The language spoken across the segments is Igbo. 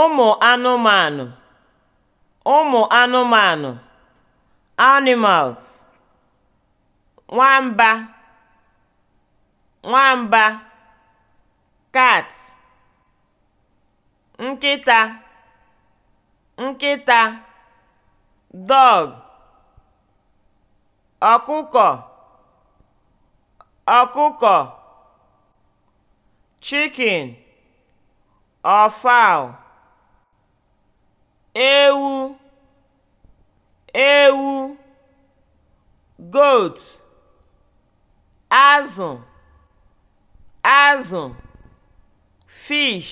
ụmụ anụmanụ ụmụ anụmanụ (animals) nwamba nwamba cat nkịta dog ọkụkọ ọkụkọ chicken or fowl goat azụ azụ fish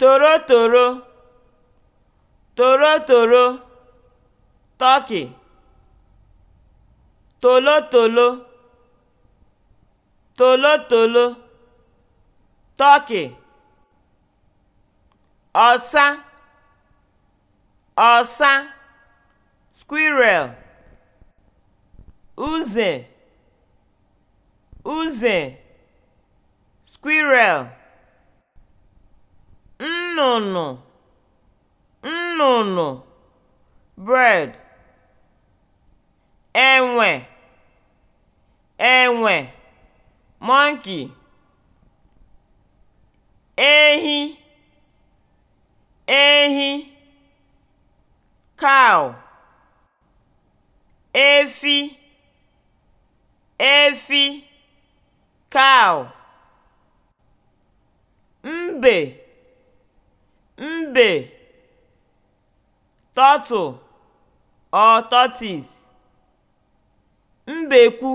torotoro torotoro turkey tolotolo tolotolo turkey ọsa ọsa squirrel uze uze squirrel nnụnụ nnụnụ bird enwe enwe monkey ehi ehi cow efi efi (cow), mbe (mbe), turtle or tortoise, mbekwu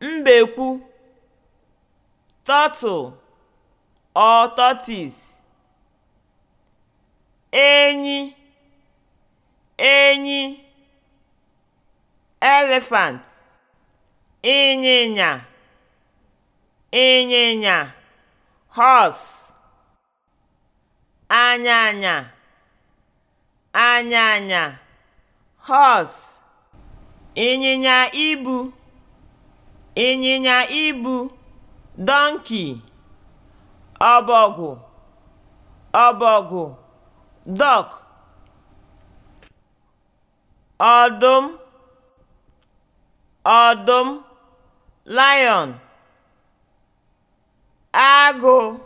(mbekwu), turtle or tortoise, enyi (enyi), elephant ịnyịnya ịnyịnya hos anyanya anyanya hos ịnyịnya ibu ịnyịnya ibu donkey ọbọgwụ ọbọgwụ duck ọdụm ọdụm lion agụ